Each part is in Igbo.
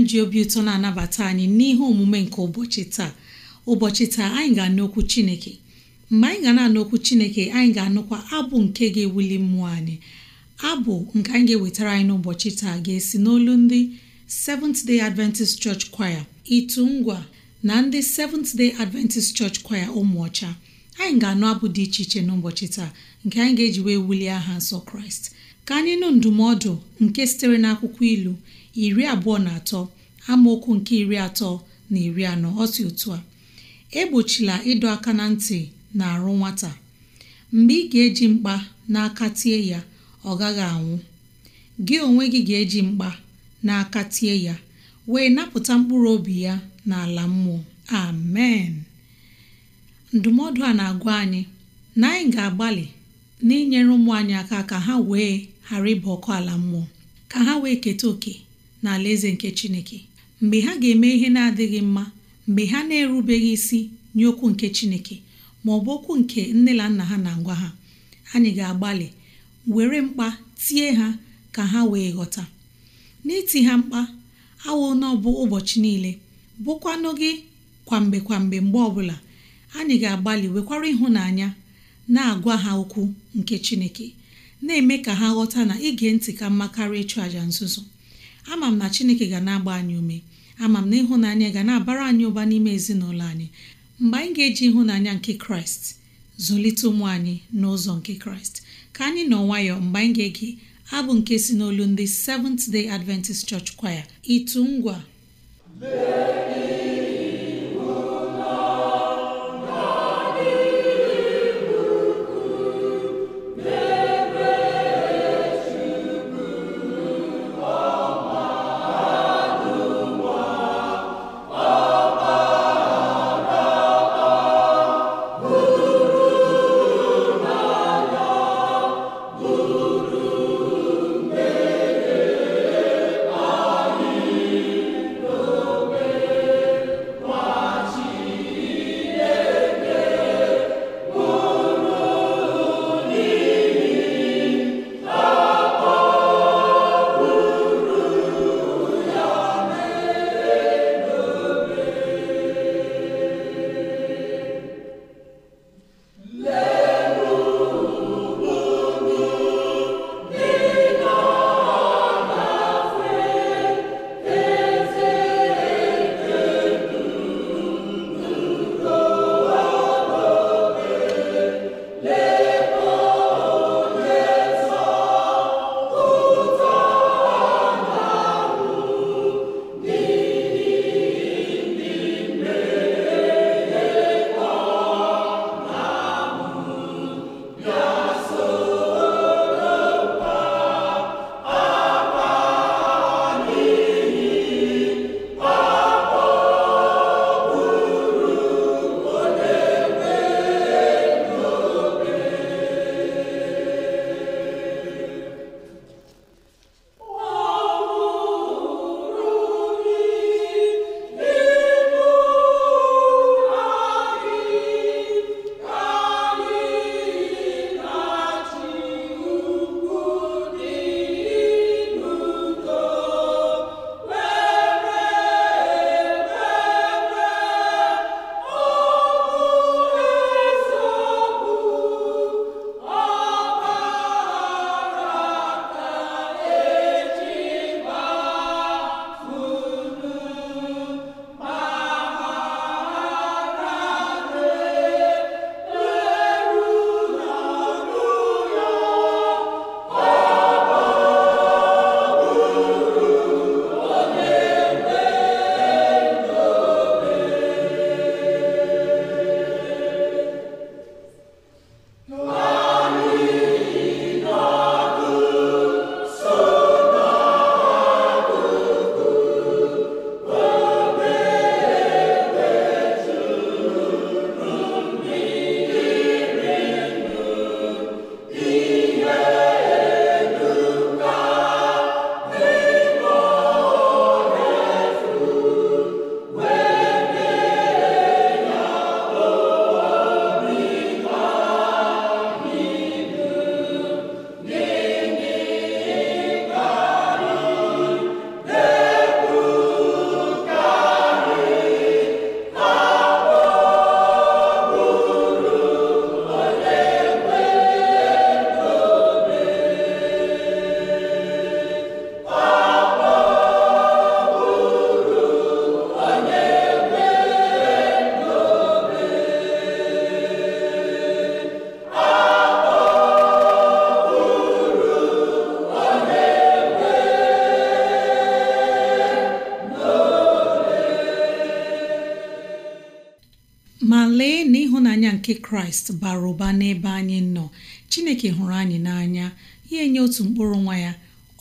anyị ji obi ụtọ na-anabata anyị n'ihe omume nke ụbọchị taa ụbọchị taa anyị ga-anụ okwu chineke mgbe anyị ga na-anụ okwu chineke anyị ga-anụkwa abụ nke ga-ewuli mmụọ anyị abụ nke anyị ga-ewetara anyị n'ụbọchị taa ga-esi n'olu ndị Seventh Day Adventist Church Choir itu ngwa na ndị Seventh Day Adventist Church Choir ụmụọcha anyị ga-anụ abụ dị iche iche n'ụbọchị taa nke anyị ga-eji wee wulie aha nsọ Kraịst ka anyị nụ ndụmọdụ nke sitere n'akwụkwọ ilu iri abụọ na atọ amaokwu nke iri atọ na iri anọ ọ si otu a egbochila ịdọ aka na ntị na arụ nwata mgbe ị ga-eji mkpa n'aka tie ya ọ gaghị anwụ gị onwe gị ga-eji mkpa n'aka tie ya wee napụta mkpụrụ obi ya n'ala mmụọ amen ndụmọdụ a na-agwa anyị na anyị ga-agbalị n'inyere ụmụ anyị aka ka ha wee ghara ịba ọkụ ala mmụọ ka ha wee keta oke na eze nke chineke mgbe ha ga-eme ihe na-adịghị mma mgbe ha na-erubeghị isi nye okwu nke chineke ma ọ bụ okwu nke nne na nna ha na ngwa ha anyị ga-agbalị were mkpa tie ha ka ha wee ghọta n'iti ha mkpa awụ na ụbọchị niile bụkwanụ gị kwamgbe kwamgbe mgbe ọbụla anyị ga-agbalị wekwara ịhụnanya na-agwa ha okwu nke chineke na-eme ka ha ghọta na ige ntị ka mma karịa ịchụ àja nzuzo ama m na chineke ga na-agba anyị ume ama m na ịhụnanya ga na-abara anyị ụba n'ime ezinụlọ anyị mgbe anyị ga-eji ịhụnanya nke kraịst zụlite ụmụ anyị n'ụzọ nke kraịst ka anyị nọ nwayọọ mgbe anyị ga-ege abụ nke si n'olu ndị Seventh Day Adventist Church Choir ịtụ ngwa kraịst bara ụba n'ebe anyị nọ chineke hụrụ anyị n'anya ya enye otu mkpụrụ nwa ya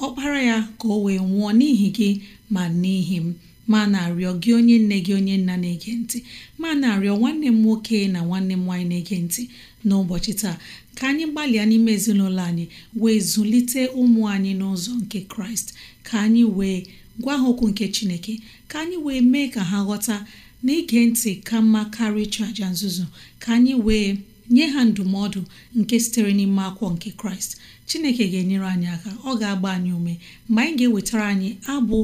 ọkpara ya ka o wee nwụọ n'ihi gị ma n'ihi m ma na-arịọ gị onye nne gị onye nna na-ege ntị ma na-arịọ nwanne m nwoke na nwanne m nwaanyị na-ege ntị n'ụbọchị taa ka anyị gbalịa n'ime ezinụlọ anyị wee zụlite ụmụ anyị n'ụzọ nke kraịst ka anyị wee gwa ha okwu nke chineke ka anyị wee mee ka ha ghọta na ntị ka mma karịa ịchụ aja nzuzo ka anyị wee nye ha ndụmọdụ nke sitere n'ime akwụkwọ nke kraịst chineke ga-enyere anyị aka ọ ga-agba anyị ume mgbe anyị ga-ewetara anyị abụ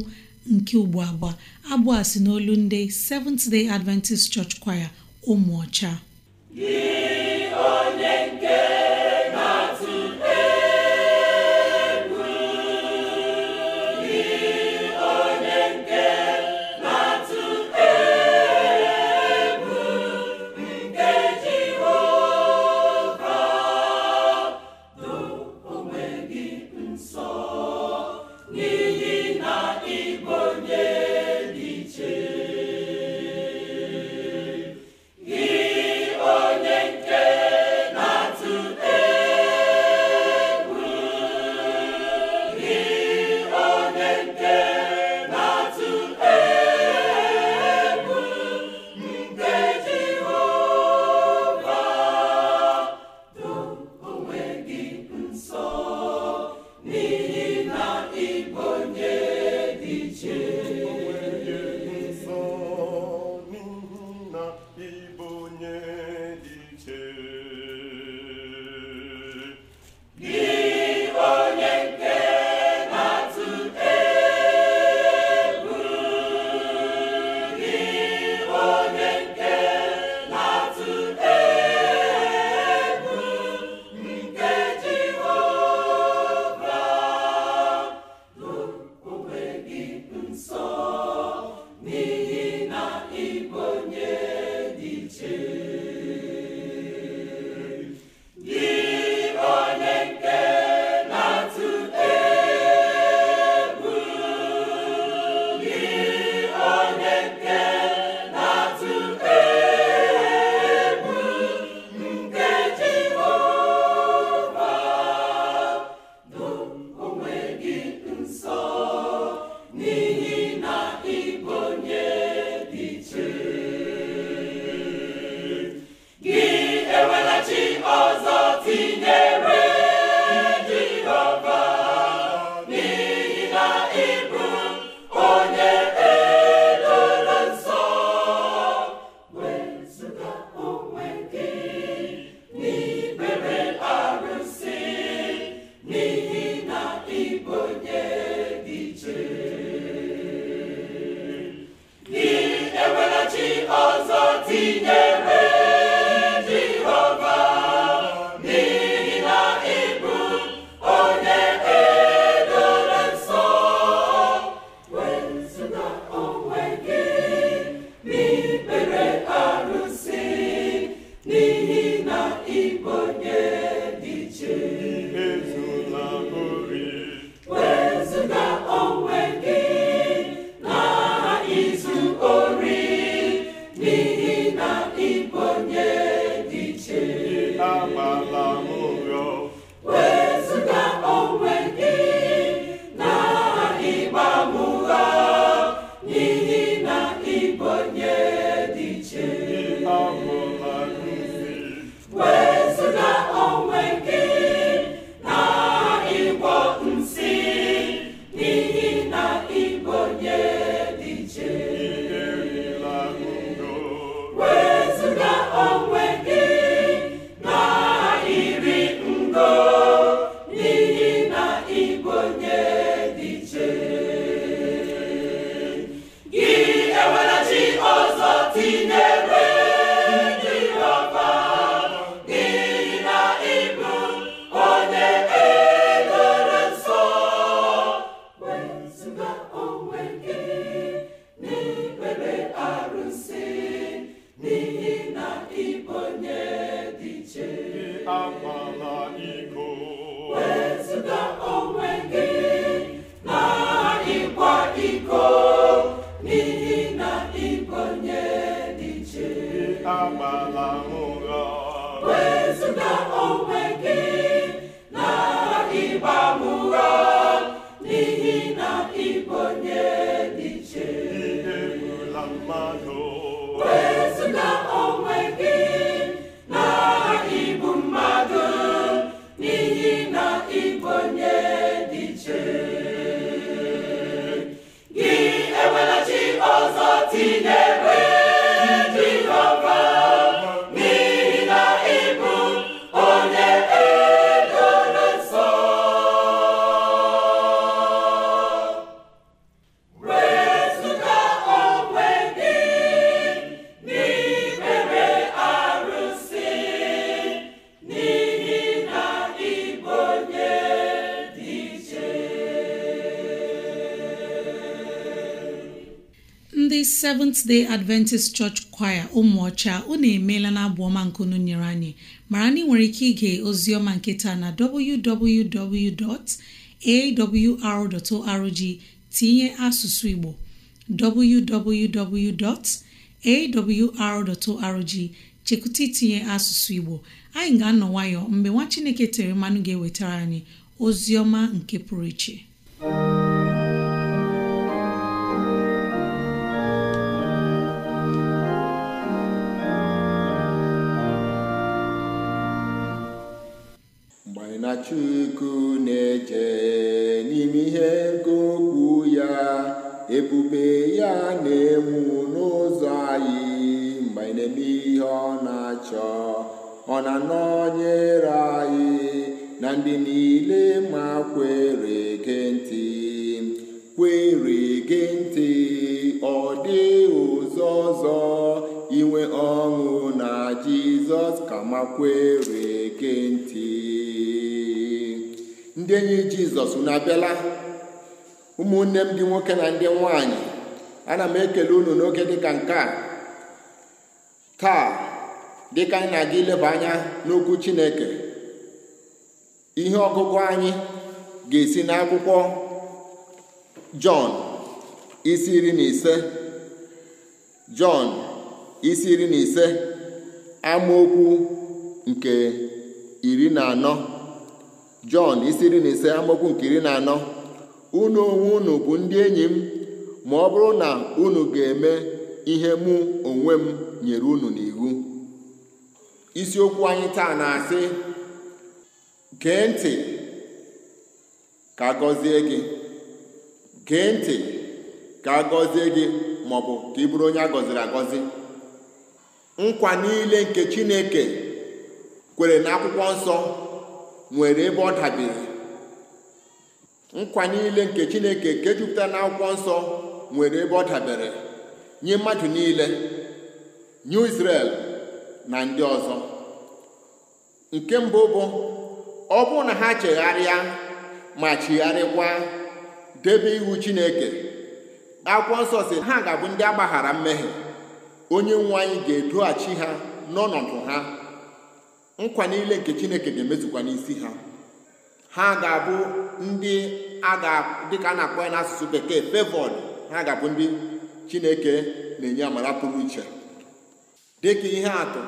nke ugbo abụọ abụ a si n'olu ndị Seventh Day Adventist Church Choir ụmụ ọcha seventh day adventist church choir ụmụọcha unu emeela na abụ ọma nkunu nyere anyị mara na ị nwere ike ige ozi ọma nketa na www.awr.org tinye asụsụ igbo arrg chekwụta itinye asụsụ igbo anyị ga-anọ nwayọ mgbe nwa chineke tere mmanụ ga-ewetara anyị ozi ọma nke pụrụ iche Chukwu na-eje n'ime ihe nke ya ebube ya na-enwu n'ụzọ anyị mgbe anyị ihe ọ na-achọ ọ na-anọnyere anyị na ndị niile ma kwere gị ntị kwere gị ntị ọ dị ụzọ ọzọ inwe ọṅụ na Jizọs ka ma kwere gị ntị ndị enyi jizọs na abịala ụmụnne m ndị nwoke na ndị nwanyị ana m ekele unu n'oge dịka nke a taa dịka anyị na-aga ileba anya n'okwu chineke ihe ọgụgụ anyị ga-esi n'akwụkwọ jọn isi iri na ise jọn isi iri na ise amaokwu nke iri na anọ jọn isi iri na ise amaokwu nke iri na anọ unu onwe unu bụ ndị enyi m ma ọ bụrụ na unu ga-eme ihe mụ onwe m nyere unu n'iwu isiokwu anyị taa na-asị gee ntị ka gọzie gị gee ntị ka agọzie gị ma ọ bụ ka ị bụrụ onye a gọziri agọzi nkwa niile nke Chineke kwere na akwụkwọ nsọ nwere ebe ọ dabere nkwa niile nke chineke nke jupụtara na akwụkwọ nsọ nwere ebe ọ dabere nye mmadụ niile nye Israel na ndị ọzọ nke mbụ bụ ọ bụrụ na ha chegharịa ma chigharịkwa debe iwu chineke akwụkwọ nsọ si ha ga-abụ ndị agbaghara mmehie onye nwe anyị ga-edoghachi ha n'ọnọdụ ha nkwa niile nke chineke ga-emezukwa n'isi ha ha ga-abụ ndị dịka a na-akpọ ya n'asụsụ bekee fevod ha ga-abụ ndị chineke na-enye amara pụrụ iche dịka ihe atụ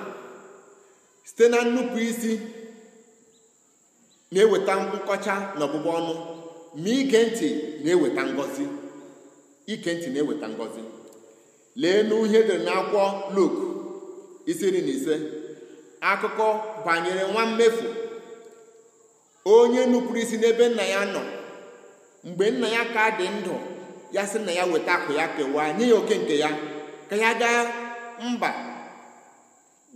site na nnupụ isi na-eweta nkọcha na ọbụbụ ọnụ ma ige ntị na-eweta ngọzi ike ntị na-eweta ngọzi lee n'uhe dere n'akwụkwọ Luk isi iri na ise akụkọ banyere nwa mmefu onye nupụrụ isi n'ebe nna ya nọ mgbe nna ya ka dị ndụ ya sị na ya weta akụ ya kewaa nye ya oke nke ya ka ya gaa mba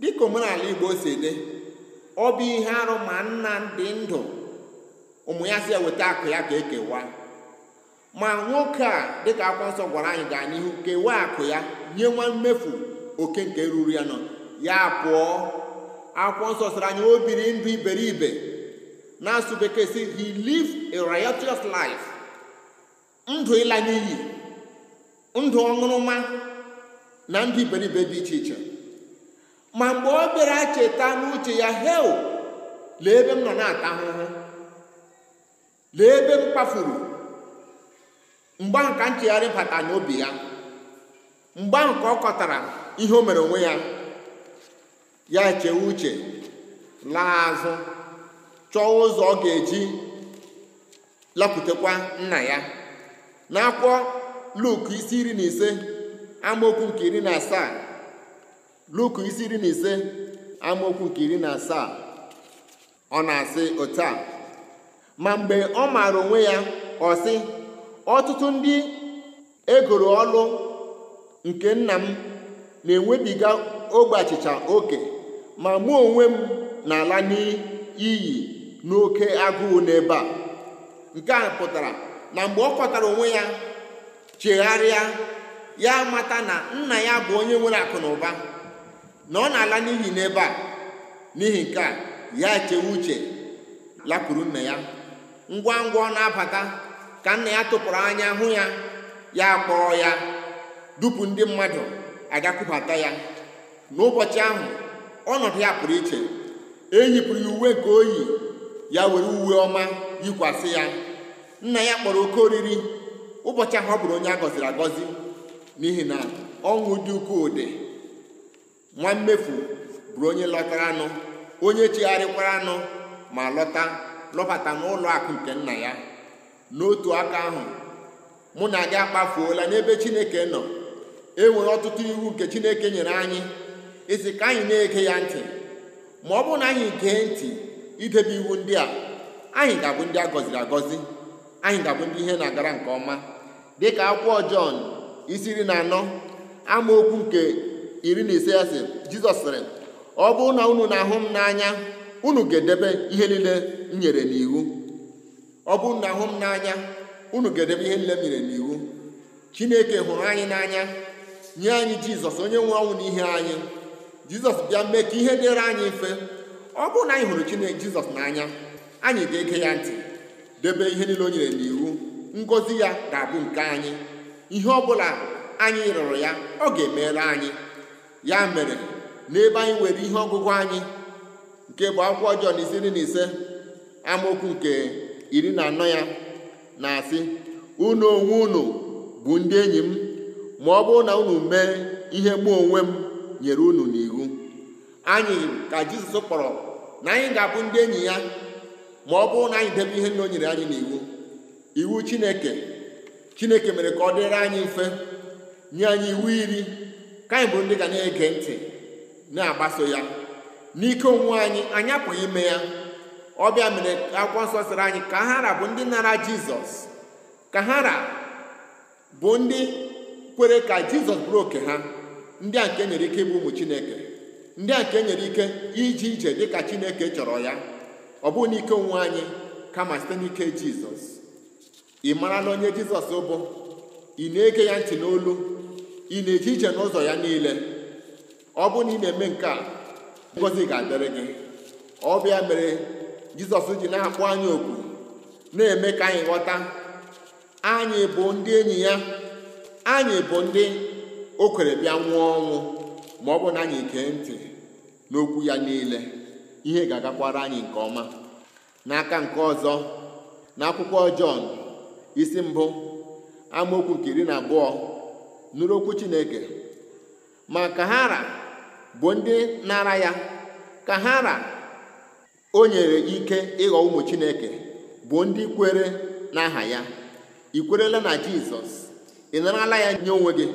dịka omenala igbo si dị ọ bụ ihe arụ ma nna dị ndụ ụmụ ya si ya weta akụ ya ka ekewaa ma nwoke a dịka akwụkwọ nsọ gwara anyị gaa n'ihu kewaa akụ ya nye nwa mmefu oke nke ruru ya nọ ya pụọ akwụkwọ nsọ anya anyị o biri ndụ iberibe na-asụ bekee si he lived a riotous life ndụ ịla n'iyi ndụ ọṅụrụma na ndụ iberibe dị iche iche ma mgbe ọ bịara cheta n'uche ya hel lee ebe m nọ na-ata ahụhụ lee ebe m kpafuru mgbe ahụ ka nchegharị bata n'obi ya mgbe ahụ ka ọ kọtara ihe o mere onwe ya ya chee uche laa azụ chọọ ụzọ ọ ga-eji lapụtakwa nna ya n'akwụkwọ luk isi iri na ise amaokwu nke iri na asaa luk isi na ise amaokwu iri na asaa ọ na-asị otu ma mgbe ọ maara onwe ya ọ ọtụtụ ndị egoro ọlụ nke nna m na-enwebiga ogbe achịcha oke ma mụ onwe m na-ala n'iyi n'oke agụụ n'ebe a nke a pụtara na mgbe ọ kọtara onwe ya chegharịa ya mata na nna ya bụ onye nwere akụ na ụba na ọ na-ala n'ihi n'ebe a n'ihi nke a ya chewe uche lapụrụ nna ya ngwa ngwa ọ na-abata ka nna ya tụpụrụ anya hụ ya ya kpọọ ya dupu ndị mmadụ agakwubata ya n'ụbọchị ahụ ọnọdụ ya pụrụ iche eyipụrụ ya uwe nke oyi ya were uwe ọma yikwasị ya nna ya kpọrọ oke oriri ụbọchị ahụ ọ bụrụ onye a gọziri agọzi n'ihi na ọṅụ dị ukwuu dị nwa mmefu bụrụ onye lọtara anụ onye chigharịkwara anụ ma lọta lọbata n'ụlọ akụ nke nna ya n'otu aka ahụ mụ na gị akpafuola n'ebe chineke nọ e nwere ọtụtụ iwu nke chineke nyere anyị ezi ka anyị na-ege ya ntị ma ọ bụrụ na anyị gee ntị idebe iwu ndị a anyị ga-abụ ndị a gọziri agọzi anyị ga-abụ ndị ihe na-agara nke ọma dịka akwụkwọ Jọn isi iri na anọ amaokwu nke iri na ise asị Jizọs sịrị ọ bụrụ na unu na-ahụ m n'anya unu ga-edebe ihe niile m nyere n'iwu ọ bụrụ na ahụ m n'anya unu ga-edebe ihe niile m nyere n'iwu Chineke hụrụ anyị n'anya nye anyị Jizọs onye nwe ọnwụ n'ihe anyị jizọs bịa mee ka ihe dịrị anyị mfe ọ bụrụ na anyị hụrụ chineke jizọs n'anya anyị ga-ege ya ntị debe ihe niile o nyere n'iwu ngozi ya ga-abụ nke anyị ihe ọ bụla anyị rụrụ ya ọ ga-emere anyị ya mere n'ebe anyị nwere ihe ọgụgụ anyị nke bụ akwụkwọ ọjọọ na na ise amaokwu nke iri na anọ ya na-asị unu onwe unu bụ ndị enyi m ma ọ bụrụ na unu mee ihe mụ onwe m nyere unu n'iwu anyị ka jizọs kpọrọ na anyị ga-abụ ndị enyi ya ma ọ bụrụ na anyị debe ihe nna o nyere anyị n'iwu iwu chineke chineke mere ka ọ dịrị anyị mfe nye anyị iwu iri ka anyị bụ ndị ga na-ege ntị na-agbaso ya n'ike onwe anyị anyị apụghị ime ya ọbịa mere akwụkwọ nsọ sịrị anyị ka hara bụ ndị nara jizọs ka bụ ndị kwere ka jizọs bụrụ oke ha ndị a nke e nyere ike ịbụ ụmụ chineke ndị a nke e nyere ike ije ije dịka Chineke chọrọ ya ọ bụghị n'ike onwe anyị kama site n'ike Jizọs ị mara na onye Jizọs bụ ị na-ege ya ntị n'olu ị na-eje ije n'ụzọ ya niile ọ bụ na ị na-eme nke a ngozi ga-adịrị gị ọ bịa mere Jizọs ji na-akpọ anyị oku na-eme ka anyị ghọta anyị bụ ndị enyi ya anyị bụ ndị o kwere bịa nwụọ ọnwụ ma ọ bụ na anyị kee ntị n'okwu ya niile ihe ga-agakwara anyị nke ọma n'aka nke ọzọ n'akwụkwọ Jọn isi mbụ amaokwu nke iri na abụọ nụrụ okwu Chineke ma ka bụ ndị nara ya ka hara o nyere ike ịghọ ụmụ Chineke bụ ndị kwere n'aha ya ị kwerela na Jizọs ị narala ya nye onwe gị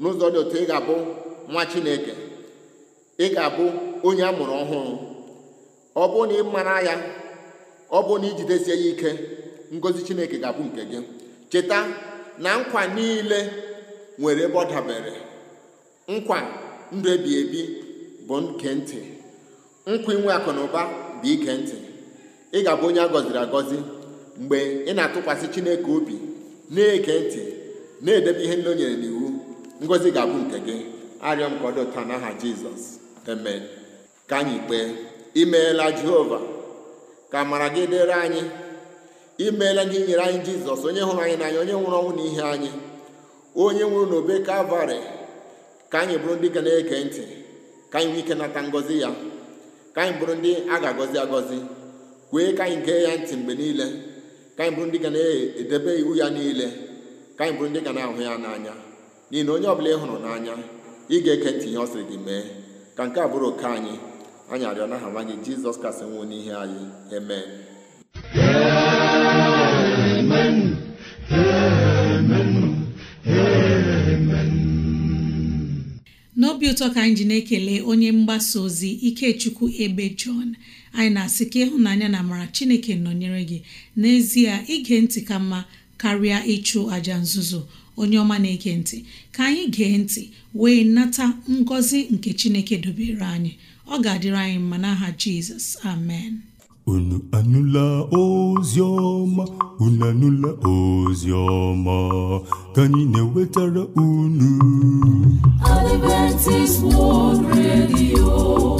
n'ụzọ dị otu ị ga-abụ nwa chineke ị ga-abụ onye a mụrụ ọhụrụ ọ bụ na ị mara ya ọ bụ na ijidesie ya ike ngozi chineke ga-abụ nke gị cheta na nkwa niile nwere ebe ọ dabere nkwa ndụ ebi ebi bụ nke ntị nkwa inwe akụ na bụ ike ntị ị ga-abụ onye a gọziri agọzi mgbe ị na-atụkwasị chineke obi na eke ntị na-edebe ihe ndị o nyere n'iwu ngozi ga-abụ nke gị arịọ m ka ọ dịta n'aha jizọs amen ka anyị kpee imeela jehova ka mara gị dịrị anyị imeela gị nyere anyị jizọs onye hụrụ anyị n'anya onye nwụrụ ọnwụ na ihe anyị onye nwụrụ n'obe kalvarị ka anyị bụrụ ndị ga na-ege ntị ka anyị nwee ike nata ngọzi ya ka anyị bụrụ ndị a ga-agọzi agọzi kwee ka anyị gee ya ntị mgbe niile ka anyị bụrụ ndị ga na-edebe iwu ya niile ka anyị bụrụ ndị ga na-ahụ ya n'anya n'ihi na onye ọbụla ị hụrụ n'anya ị ga-eke ntị ihe ọ sịrị gị mee ka nke a bụrụ oke anyị anyị arịọ n'aha nwa gị jizọs kasị nwụọ n'ihe anyị eme n'obi ụtọ ka anyị ji na-ekele onye mgbasa ozi ikechukwu ebe jọn anyị na-asị ka ịhụnanya na amara chineke nọnyere gị n'ezie ige ntị ka mma karịa ịchụ aja nzuzo onye ọma na-ege ntị ka anyị gee ntị wee nata ngọzi nke chineke dobere anyị ọ ga-adịrị anyị mma n'aha jizọs amen unu anụla ozi ọma unu anụla ozi ọma ka anyị na-ewetara unu Adventist World Radio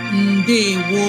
ndewo